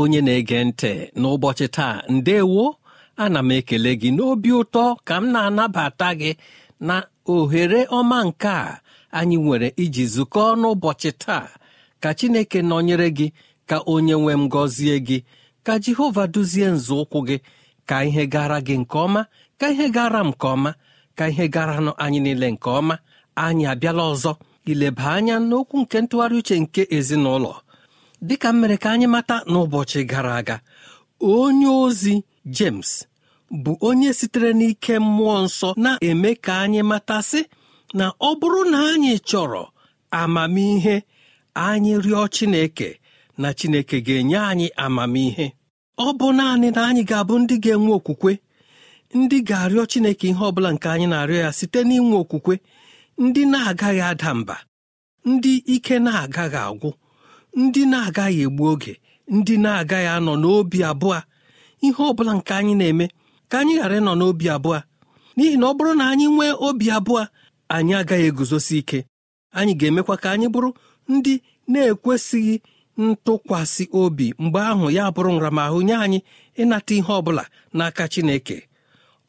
onye na-ege ntị n'ụbọchị taa ndewo ana m ekele gị n'obi ụtọ ka m na-anabata gị na ohere ọma nke a anyị nwere iji zukọọ n'ụbọchị taa ka chineke nọnyere gị ka onye nwe m gọzie gị ka jehova duzie nzọụkwụ gị ka ihe gara gị nke ọma ka ihe gara m nke ọma ka ihe garanụ anyị niile nke ọma anyị abịala ọzọ ileba anya n'okwu nke ntụgharị uche nke ezinụlọ dịka m mere ka anyị mata n'ụbọchị gara aga onye ozi James bụ onye sitere n'ike mmụọ nsọ na-eme ka anyị matasị na ọ bụrụ na anyị chọrọ amamihe anyị rịọ Chineke na Chineke ga-enye anyị amamihe ọ bụ naanị na anyị ga-abụ ndị ga-enwe okwukwe ndị ga-arịọ Chineke ihe ọ bụla nke anyị na-arịọ ya site n'inwe okwukwe ndị na-agaghị ada mba ndị ike na-agaghị agwụ ndị na-agaghị egbu oge ndị na-agaghị anọ n'obi abụọ ihe ọ bụla nke anyị na-eme ka anyị ghara ịnọ n'obi abụọ n'ihi na ọ bụrụ na anyị nwee obi abụọ anyị agaghị eguzosi ike anyị ga-emekwa ka anyị bụrụ ndị na-ekwesịghị ntụkwasị obi mgbe ahụ ya bụrụ nramahụ nye anyị ịnata ihe ọ bụla n'aka Chineke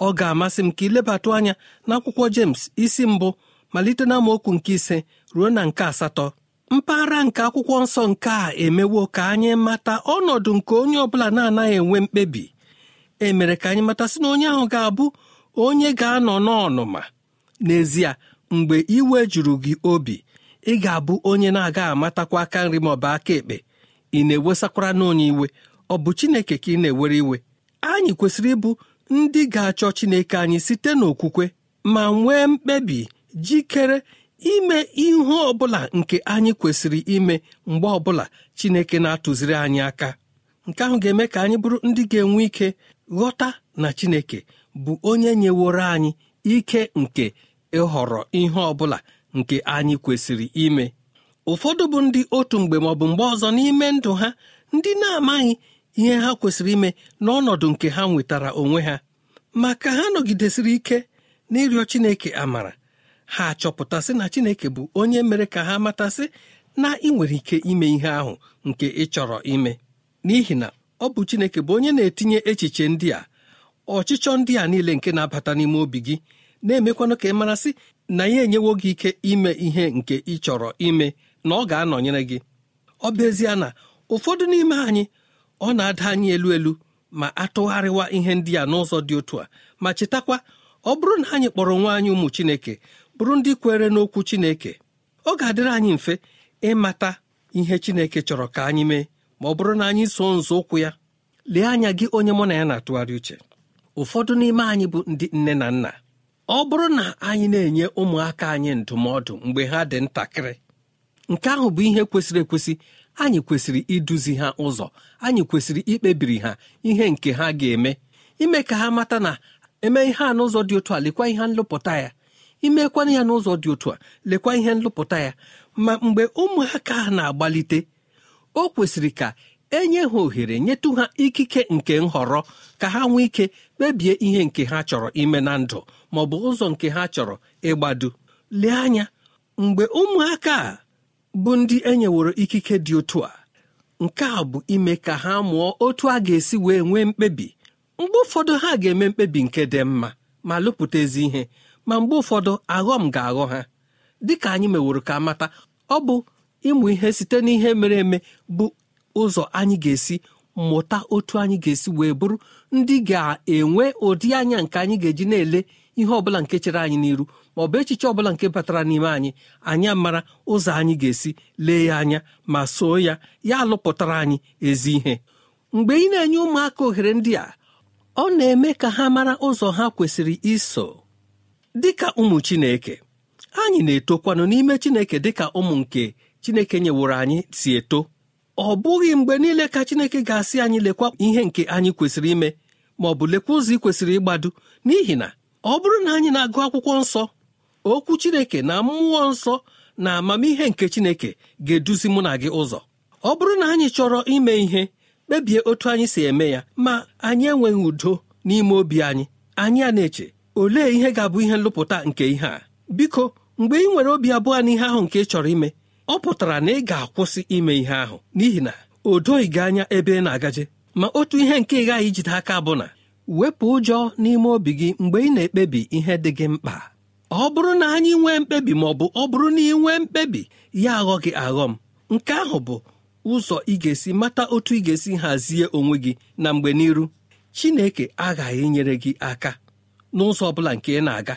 ọ ga-amasị m ka ilebatụ anya n'akwụkwọ James isi mbụ malite na okwu nke ise ruo na nke asatọ mpaghara nke akwụkwọ nsọ nke a emewo ka anyị mata ọnọdụ nke onye ọbụla na-anaghị enwe mkpebi e mere ka anyị mata sị na onye ahụ ga-abụ onye ga-anọ n'ọnụma n'ezie mgbe iwe juru gị obi ị ga-abụ onye na-aga amatakwa aka nri maọbụ aka ekpe ị na-ewesakwara n'onye iwe ọ bụ chineke ka ị na-ewere iwe anyị kwesịrị ịbụ ndị ga-achọ chineke anyị site n'okwukwe ma nwee mkpebi jikere ime ihe ọbụla nke anyị kwesịrị ime mgbe ọbụla chineke na-atụziri anyị aka nke ahụ ga-eme ka anyị bụrụ ndị ga-enwe ike ghọta na chineke bụ onye nyeworo anyị ike nke ịhọrọ ihe ọbụla nke anyị kwesịrị ime ụfọdụ bụ ndị otu mgbe maọbụ mgbe ọzọ n'ime ndụ ha ndị na-amaghị ihe ha kwesịrị ime n'ọnọdụ nke ha nwetara onwe ha ma ka ha nọgidesịrị ike n'ịrịọ chineke amara ha achọpụtasị na chineke bụ onye mere ka ha matasị na ị nwere ike ime ihe ahụ nke ị chọrọ ime n'ihi na ọ bụ chineke bụ onye na-etinye echiche ndị a ọchịchọ ndị a niile nke na-abata n'ime obi gị na-emekwanụ ka ị marasị na ya enyewo gị ike ime ihe nke ị chọrọ ime na ọ ga-anọnyere gị ọ bụ ezie na ụfọdụ n'ime anyị ọ na-ada anyị elu elu ma atụgharịwa ihe ndị a n'ụzọ dị otu a ma chetakwa ọ bụrụ na anyị kpọrọ nwa anyị ụmụ chineke bụrụ ndị kwere n'okwu Chineke ọ ga-adịrị anyị mfe ịmata ihe Chineke chọrọ ka anyị mee ma ọ bụrụ na anyị so ụkwụ ya lee anya gị onye mụ na ya na-atụgharị uche ụfọdụ n'ime anyị bụ ndị nne na nna ọ bụrụ na anyị na-enye ụmụaka anyị ndụmọdụ mgbe ha dị ntakịrị nke ahụ bụ ihe kwesịrị ekwesị anyị kwesịrị iduzi ha ụzọ anyị kwesịrị ikpebiri ha ihe nke ha ga-eme ime ka ha mata na eme ihe a n'ụzọ dị otu a lekwa ihe nlụpụta ya imekwana ya n'ụzọ dị otu a lekwa ihe nlụpụta ya ma mgbe ụmụaka ha na-agbalite o kwesịrị ka enye ha ohere nyetụ ha ikike nke nhọrọ ka ha nwee ike kpebie ihe nke ha chọrọ ime na ndụ ma ọ bụ ụzọ nke ha chọrọ ịgbado lee anya mgbe ụmụaka a bụ ndị enyeworo ikike dị otu a nke a bụ ime ka ha mụọ otu a ga-esi wee nwee mkpebi mgbe ụfọdụ ha ga-eme mkpebi nke dị mma ma lụpụta ezi ihe ma mgbe ụfọdụ aghọm ga-aghọ ha dịka anyị meworo ka mata ọ bụ ịmụ ihe site n'ihe mere eme bụ ụzọ anyị ga-esi mụta otu anyị ga-esi wee bụrụ ndị ga-enwe ụdị anya nke anyị ga-eji na-ele ihe ọbụla nke chere anyị n'iru ma ọ bụ echiche ọbụla nke batara n'ime anyị anyị mara ụzọ anyị ga-esi lee ya anya ma soo ya ya alụpụtara anyị ezi ihe mgbe ị na-enye ụmụaka ohere ndị a ọ na-eme ka ha mara ụzọ ha kwesịrị iso dịka ụmụ Chineke anyị na-etokwanụ n'ime Chineke dịka ụmụ nke Chineke nyeworo anyị si eto ọ bụghị mgbe niile ka Chineke ga-asị anyị lekwa ihe nke anyị kwesịrị ime ma ọ bụ lekwa ụzọ ị kwesịrị ịgbado n'ihi na ọ bụrụ na anyị na-agụ akwụkwọ nsọ okwu Chineke na mmụọ nsọ na amamihe nke Chineke ga-eduzi mụ na gị ụzọ ọ bụrụ na anyị chọrọ ime ihe kpebie otu anyị si eme ya ma anyị enweghị udo n'ime obi anyị anyị a na-eche olee ihe ga-abụ ihe nlụpụta nke ihe a biko mgbe ị nwere obi abụọ n'ihe ihe ahụ nke ị chọrọ ime ọ pụtara na ị ga-akwụsị ime ihe ahụ n'ihi na o doghị gị anya ebe ị na-agaje ma otu ihe nke ị ghaghị ijide aka bụ na wepụ ụjọ n'ime obi gị mgbe ị na-ekpebi ihe dị gị mkpa ọ bụrụ na anyị nwee mkpebi ma ọ bụ ọ bụrụ na ị nwee mkpebi ya aghọ gị aghọ m nke ahụ bụ ụzọ ị ga-esi mata otu ị ga-esi hazie onwe gị na mgbe n'iru Chineke aghaghị nyere gị aka n'ụzọ ọ bụla nke ị na-aga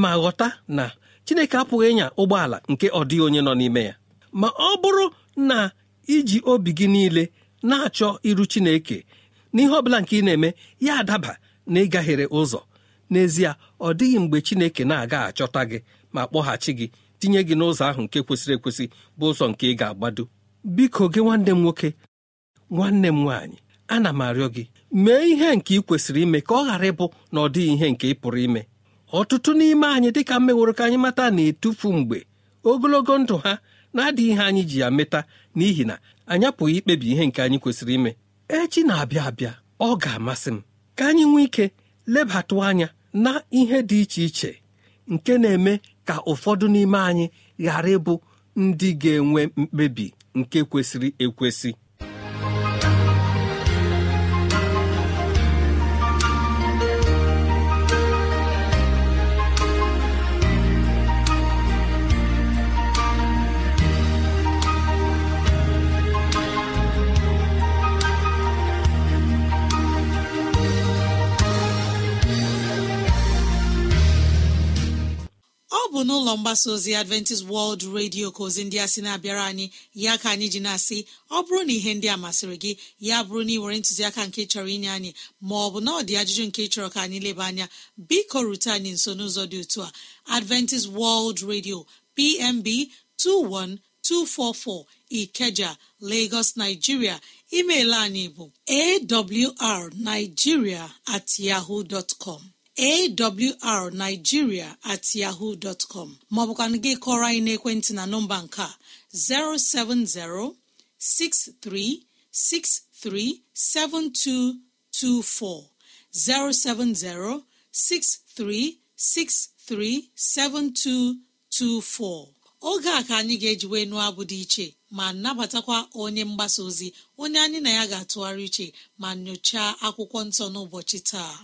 ma ghọta na Chineke apụghị ịnya ụgbọala nke ọ dịghị onye nọ n'ime ya ma ọ bụrụ na iji obi gị niile na-achọ iru Chineke n'ihe ọ bụla nke ị na-eme ya adaba na ịgaghere ụzọ n'ezie ọ dịghị mgbe Chineke na-aga achọta gị ma kpọghachi gị tinye gị n'ụzọ ahụ nke kwesịrị ekwesị bụ ụzọ nke ị ga-agbado biko gị nwanne m nwoke nwanne m nwaanyị ana m arịọ gị mee ihe nke ị kwesịrị ime ka ọ ghara ịbụ na ọ dịghị ihe nke ị pụrụ ime ọtụtụ n'ime anyị dịka mmeworo ka anyị mata na-etufu mgbe ogologo ndụ ha na-adịghị ihe anyị ji ya meta n'ihi na anyị apụghị ikpebi ihe nke anyị kwesịrị ime echi na-abịa abịa ọ ga-amasị m ka anyị nwee ike lebatụ anya na ihe dị iche iche nke na-eme ka ụfọdụ n'ime anyị ghara ịbụ ndị ga-enwe mkpebi nke kwesịrị ekwesị mgbasa ozi adventist World Radio ka ozi ndị a sị na-abịara anyị ya ka anyị ji na-asị ọ bụrụ na ihe ndị a masịrị gị ya bụrụ na ị were ntụziaka nke chọrọ inye anyị ma ọ bụ na ọ dị ajụjụ nke chọrọ ka anyị leba anya biko rute anyị nso n'ụzọ dị otu a adventist World Radio PMB 21244 Ikeja Lagos Nigeria email anyị bụ awrnigeria at yahoo dot awrnigeria at yahoo dọtcọm maọbụkwana gị kọrọ anyị n'ekwentị na nọmba nke a 07063637224 7224 oge a ka anyị ga-ejiwe nụọ abụ dị iche ma nabatakwa onye mgbasa ozi onye anyị na ya ga-atụgharị iche ma nyochaa akwụkwọ nsọ n'ụbọchị taa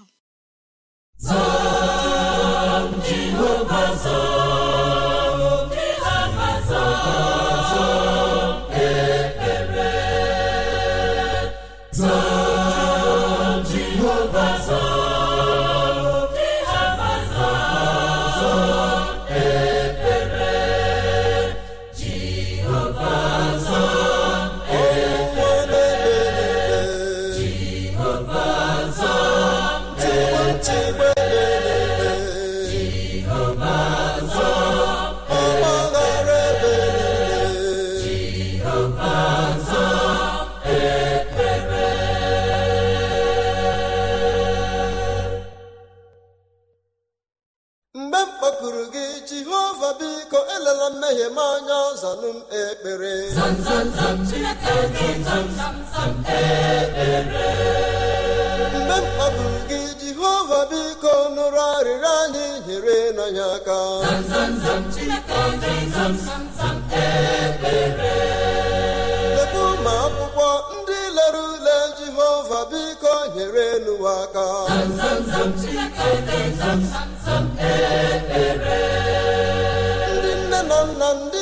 zaa Jehova zaa Jehova zaa mgbe mkpa bụ gị Jehova biko nụrụ arịrịọ anyị nyere n'anya aka ebe ụmụ akwụkwọ ndị lere ule Jehova biko nyere n'ụwa aka ndị nne na nna ndị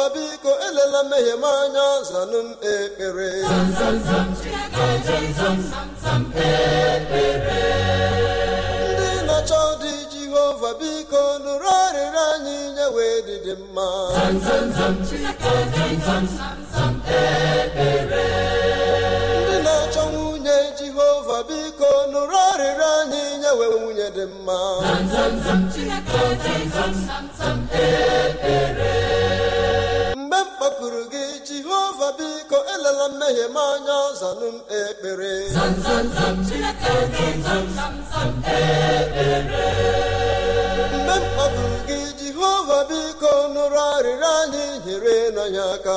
Ifa biko elela mmehie m anya zanụ m ekpere ndị na-achọ dị Jehova biko nụrụ arịrị anyị nye wee dịdị mma ndị na-achọ nwunye Jehova biko nụrụ arịrị anyị nye wee nwunye dị mma fepụrụ gị jehova biko elela mmehie m anya zanụ m ekpere mgbe m kpọpụrụ gị jehova biko nụrụ arịrịọ anyị nyere n'anya aka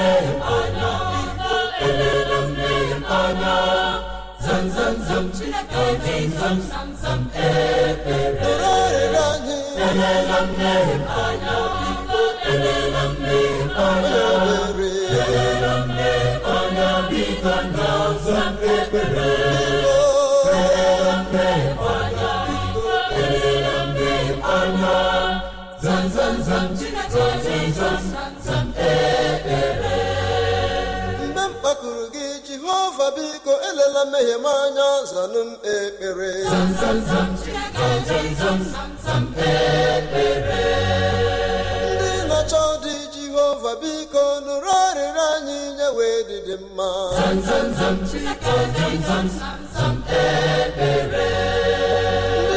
samsam ekpere elele m meghepanya biko elela mmehie m anya zanụ m ekpere ndị na-achọ dị jehova biko nụrụ arịrị anyị nye wee dịdị mma ndị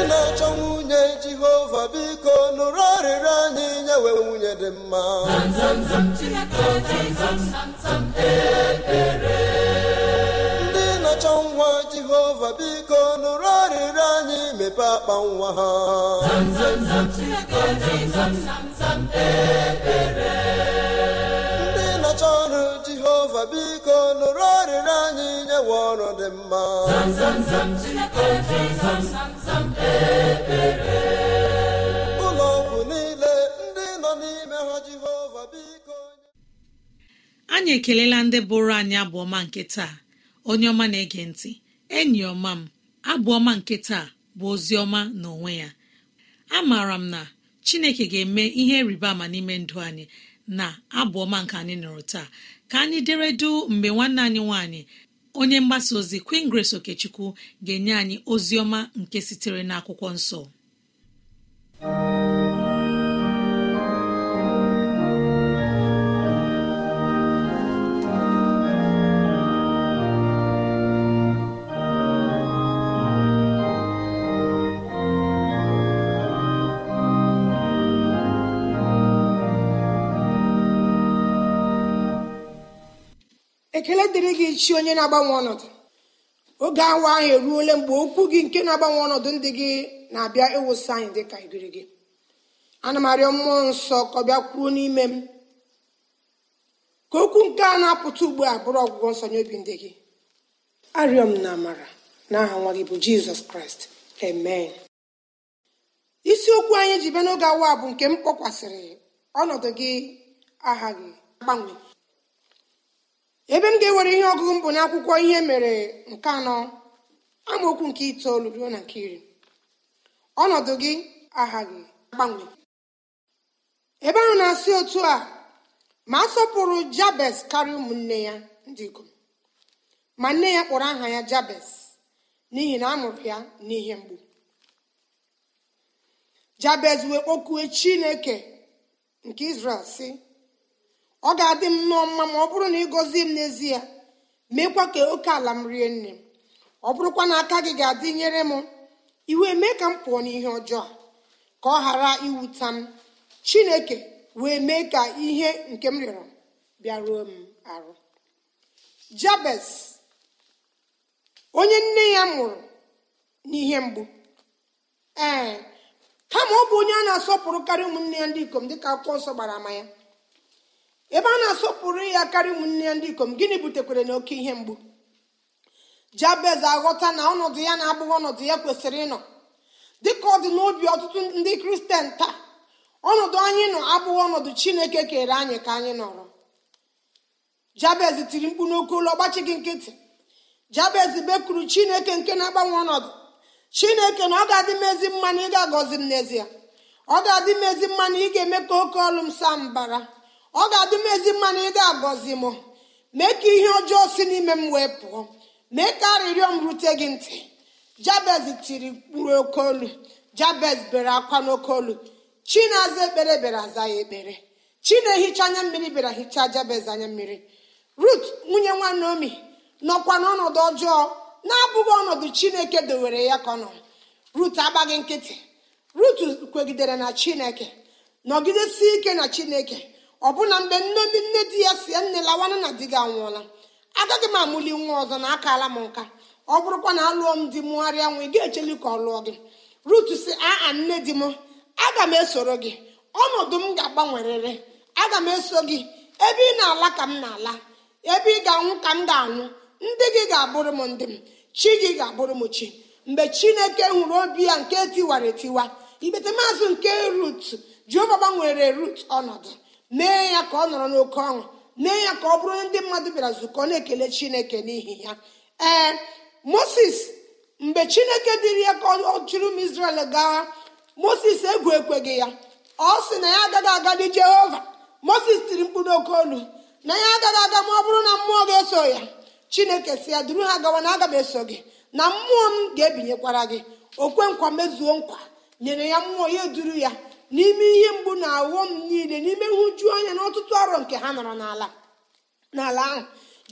na-achọ nwunye jehova biko nụrụ arịrị anyị nye wee nwunye dị mma ekpere. nwa jehova biko nụrụ arịrịọ anyị mepe akpa nwa ha ndị nọcha ọrụ jehova biko nụrụ arịrịọ anyị nyewe ọrụ dị mma ụlọ ọgwụ niile ndị nọ n'ime ha jehova biko anyị ekelela ndị bụrụ anyị abụọma nke taa onye ọma na-ege ntị enyi ọma m abụ ọma nke taa bụ ozi ọma na onwe ya maara m na chineke ga-eme ihe rịba ama n'ime ndụ anyị na abụ ọma nke anyị nọrọ taa ka anyị dere deredu mgbe nwanne anyị nwanyị. onye mgbasa ozi Queen Grace Okechukwu ga-enye anyị ozi ọma nke sitere n'akwụkwọ nsọ ekele dịrị gị chi onye na-agbanwe ọnọdụ oge awa ahụ eruole mgbe okwu gị nke na-agbanwe ọnọdụ ndị gị na-abịa ịwụsị anyị dị ka igiri gị ana m arịọ mmụọ nsọ ka ọ bịa kwuo n'ime m ka okwu nke a na-apụta ugbu a bụrụ ọgwụgwọ nsọ nye obi ndị gị arịọ m na amara n'aha nwa gị bụ jizọs kraịst amen isiokwu anyị ji bịa n'oge awa bụ nke m kpọkwasịrị ọnọdụ gị aha gị gbanwe ebe m ga-ewere ihe ọgụgụ mbụ n'akwụkwọ ihe mere nke anọ amaokwu nke itoolu ruo na nke iri ọnọdụ gị aghaghị agbanwe ebe ahụ na-asị otu a ma a sọpụrụ jabes karịa ụmụnne ya ndị ikom ma nne ya kpọrọ aha ya jabes n'ihi na a ya n'ihe mgbu jabez wee kpọkuo chineke nke izrel si ọ ga-adị m nụọ mma ma ọ bụrụ na ị gọzie m n'ezie meekwa ka oke ala m rie nne m ọ bụrụkwa na aka gị ga-adị nyere m iwe mee ka m pụọ n'ihe ọjọọ ka ọ ghara iwuta m chineke wee mee ka ihe nke m rịọrọ bịaruo m arụ jabes onye nne ya mụrụ n'ihe mgbu ee kama ọ bụ onye a na-asọpụrụ ụmụnne ya ndị ikom dịka akwụkwọ nsọ gbara ama ya ebe a na-asọpụrụ ya karịa ụmụnne ya ndị ikom gịnị butekwere na oke ihe mgbu jabez aghọta na ọnọdụ ya na-abụghị ọnọdụ ya kwesịrị ịnọ dịka ọ dị n'obi ọtụtụ ndị kristian taa ọnọdụ anyị nọ abụghị ọnọdụ chineke kere anyị ka anyị nọrọ jabez tiri mkpu n'oke ụlọ ọgbachi gị nkịtị jabez bekwuru chineke nke na-agbanwe ọnọdụ chineke na ọ ga-adị m ezi mma na m n'ezie ọ ga-adị m ezi mma ị ga-eme ka oke ọlụ m saa mbara ọ ga-adị m ezi mma na ị ga-agọzi m mee ka ihe ọjọọ si n'ime m wee pụọ mee ka arịrịọ m rute gị ntị jabez tiri mkpụrụ oke olu jabez bere akwa n'oke olu chi aza ekpere bịara aza ya ekpere chi na-ehicha anya mmiri bịara hichaa jabez anya mmiri rut nwunye nwanneomi nọkwa n'ọnọdụ ọjọọ na-abụghị ọnọdụ chineke dowere ya ka ọ rut agbaghị nkịtị rut kwegidere na chineke nọgidesi ike na chineke ọbụna mgbe nne ndị nne di ya si nne lawanụ na di gị anwụọla agaghị m amụli nwa ọzọ na akala m nka ọ bụrụkwa na alụọ m di mụgharịa nwa ị ga-echeli ka ọ lụọ gị rut si aa nne di m aga m esoro gị ọnọdụ m ga-agbanwerịrị aga m eso gị ebe ị na-ala ka m na-ala ebe ị ga-anwụ ka m ga-anwụ ndị gị ga-abụrụ m ndị m chi gị ga-abụrụ m chi mgbe chineke nwụrụ obi ya nke tiwara etiwa ikpete maazị nke rut jeova gbanwere rut ọnọdụ mee ya ka ọ nọrọ n'oke ọṅụ mee ya ka ọ bụrụ ndị mmadụ bịara zukọ na-ekele chineke n'ihi ya ee moses mgbe chineke dịrị ya ka ọ chụrụ m izrel gawa moses egwu ekweghị ya ọ sị na ya agaghị agadị jehova moses tiri mkpụrụ oke olu na ya agaghị aga ma ọ bụrụ na mmụọ ga-eso ya chineke si ya duru ha gawa na aga m eso gị na mmụọ m ga-ebinyekwara gị okwe nkwa mezuo nkwa nyere ya mmụọ ya duru ya n'ime ihe mgbu na m niile n'ime nhụju anya na ọtụtụ arọ nke ha nọrọ n'ala n'ala ahụ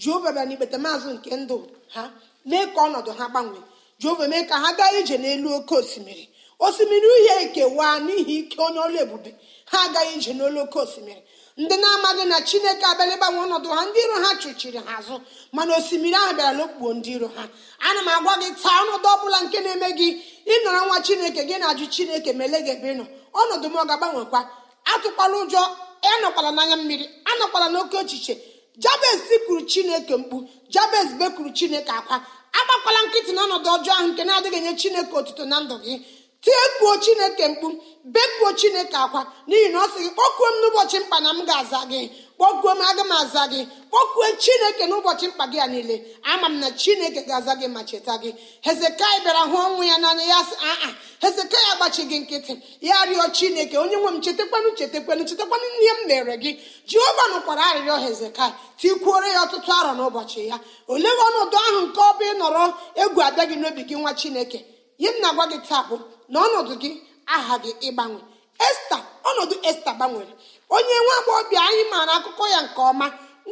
jehova bịa n'ikpeta maazụ nke ndụ ha mee ka ọnọdụ ha gbanwee jehova mee ka ha gaa ije n'elu oke osimiri osimiri uhie ekewa n'ihi ike onye ọlụ ebube ha agaghị ije n'olu oke osimiri ndị na-amaghị na chineke abịala ịgbanwe ọnọdụ ha ndị iro ha chụchiri ha azụ mana osimiri ahụ bịara n'okpukpo ndị iro ha ana m agwa gị taa ọnọdụ ọbụla nke na-eme gị ịnọrọ nwa chineke gị na-ajụ chineke ma gị ebe ị nọ ọnọdụ m ọ ga-agbanwekwa atụkwala ụjọ anọkwala n'anya mmiri anọkwala n'oke ochiche jabez kwuru chineke mkpu jabes bekwuru chineke akwa agbakwala nkịtị n'ọnọdụ ọjọọ ahụ nke na-adịghị enye chineke otuto na ndụ gị tiekwuo chineke mkpu bekuo chineke akwa n'ihi na ọ sị gị kpọkuo m n'ụbọchị mkpa na m ga-aza gị kpọkuo m aga m aza gị kpọkuo chineke n'ụbọchị mkpa gị a niile ama m na chineke ga-aza gị ma cheta gị hezekai bịara hụ ọnwụ ya n'anya ya sị aa hezekai agbachi gị nkịtị ya rịọ chineke onye nwe m chetakwanụ chetakwanụ chetakwanụ ihe m mere gị jehova nụkwara arịrịọ hezekai tikwuore ya ọtụtụ arọ n'ụbọchị ya olee ọnọdụ ahụ nke ọ bụ ịnọrọ egwu abịa gị n'obi gị nwa chineke ihe m na-agwa gị taa na ọnọdụ gị aha gị ịgbanwe esta ọnọdụ esta gbanwere onye nwa agbọghọbịa anyị maara akụkọ ya nke ọma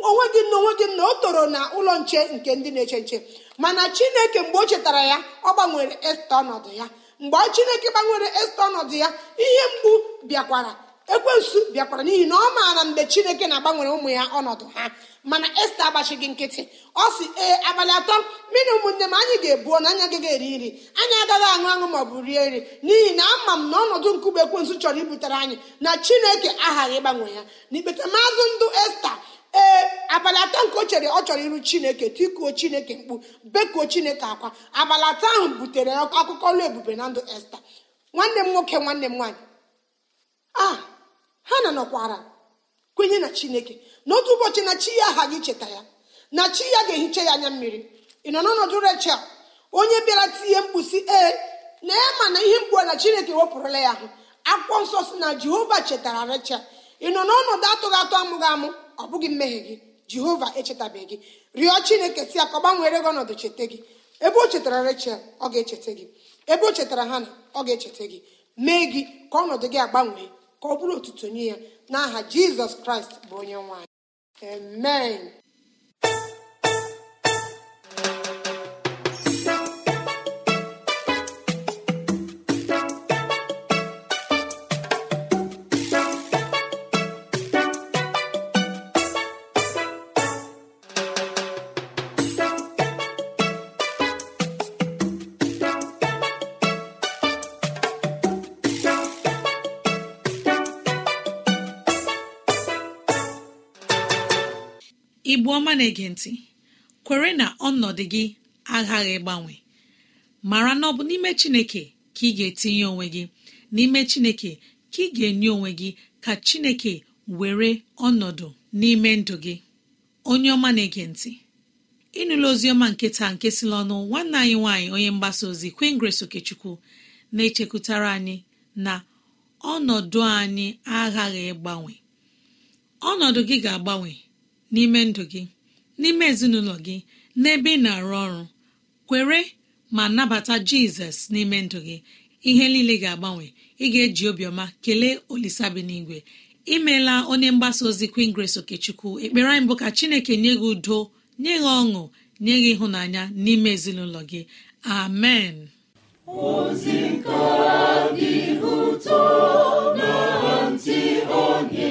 onwe gị na onwe gị na o toro na ụlọ nche nke ndị na-eche nche mana chineke mgbe o chetara ya ọ gbanwere esta ọnọdụ ya mgbe chineke gbanwere esta ọnọdụ ya ihe mgbu bịakwara ekwensu bịakwara n'ihi na ọ maara mgbe chineke na-agbanwere ụmụ ya ọnọdụ ha mana esta agbachighị nkịtị ọ si ee abalị atọ mmiri ụmụnne m anyị ga-ebuo na anyị ga eri nri anyị agaghị aṅụ aṅụ ma ọ bụ rie nri n'ihi na ama m na ọnọdụ nkume ekwensu chọrọ ibutere anyị na chineke aghaghị ịgbanwe ya n'ikpeta maazụ ndụ esta ee abalị atọ nke o chere ọ chọrọ iru chineke tikuo chineke mkpu bekuo chineke akwa abalị atọ ahụ butere akụkọ ọlụ ebube na ndụ esta nwanne m nwoke nwanne m nwaanyị a ah! ha na nọkwara kwenye na chineke n'otu ụbọchị na chi ya aha gị cheta ya na chi ya ga-ehicha ya anya mmiri ị nọ n'ọnọdụ rechel onye bịara tinye mkpusi ee na ema ma na ihe mgbu na chineke wepụrụla ya ahụ akwụkwọ nsọ si na jehova chetara rechel ị nọ n'ọnọdụ atụghị atụ amụghị amụ ọ bụghị mmehie gị jehova echetabeghị rịọ chineke si ya ka ọ gbanwere gị ọnọdụ cheta gị ebe o chetara rechel ọ ga-echeta gị ebe o chetara na ọ ga-echeta gị mee gị ka ọnọdụ gị agbanwee ka ọ bụrụ otuto nye ya n'aha jizọs kraịst bụ onye nwanyị amen onye ọma na-ege ntị kwere na ọnọdụ gị aghaghị ịgbanwe mara na ọ bụ n'ime chineke ka ị ga-etinye onwe gị n'ime chineke ka ị ga-enye onwe gị ka chineke were ọnọdụ n'ime ndụ gị onye ọma na-ege ntị ozi oziọma nke taa nke si ọnụ nwanne anyị nwaanyị onye mgbasa ozi queen grace okechukwu na-echekwutara anyị na ọnọdụ anyị aghaghị ịgbanwe ọnọdụ gị ga-agbanwe n'ime ndụ gị n'ime ezinụlọ gị n'ebe ị na-arụ ọrụ kwere ma nabata jizọs n'ime ndụ gị ihe niile ga-agbanwe ị ga-eji obiọma kelee olisabinigwe imeela onye mgbasa ozi Queen Grace Okechukwu ekpere anyị ka chineke nye gị udo nye gị ọṅụ nye gị ịhụnanya n'ime ezinụlọ gị amen ozi nke dị ụtọ na ntị onye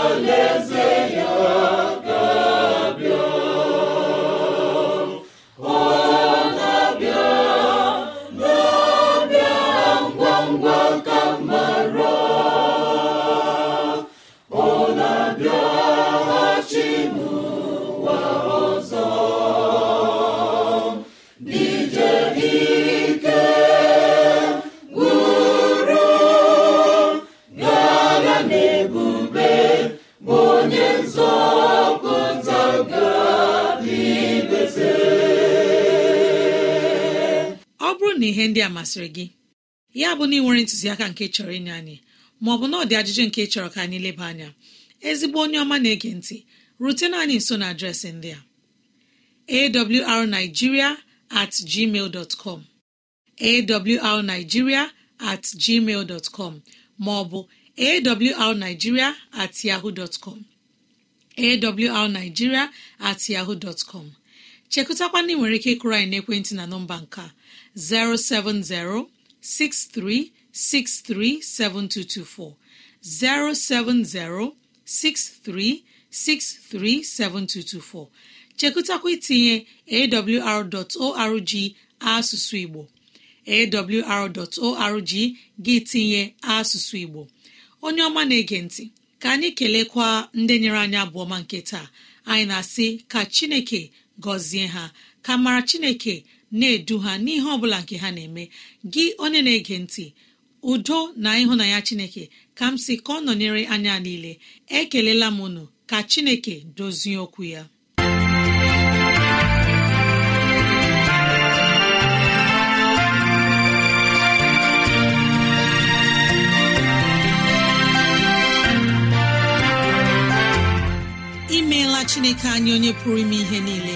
ihe ndị a masịrị gị ya bụ na ị nwere ntụziaka nke chọrọ inye anyị maọbụ na ọ dị ajụjụ nke chọrọ ka anyị leba anya ezigbo onye ọma na-ege ntị rutena anyị nso na adreesị ndị a awrnigeria at Ma ọ com awrnigeria at maọbụ at chekụtakwa ndị nwere ike ịkụrụ anyị n'ekwentị na nọmba nka- 07063637224 07063637224 chekụtakwa itinye awr.org asụsụ Igbo awr.org gị tinye asụsụ Igbo onye ọma na-ege ntị ka anyị kelekwa ndị nyere anyị abụọma nke taa anyị na-asị ka Chineke gozie ha ka mara chineke na-edu ha n'ihe ọ bụla nke ha na-eme gị onye na-ege ntị udo na ịhụnanya chineke ka m si ka ọ nọnyere anya niile ekelela m unu ka chineke dozie okwu ya imeela chineke anyị onye pụrụ ime ihe niile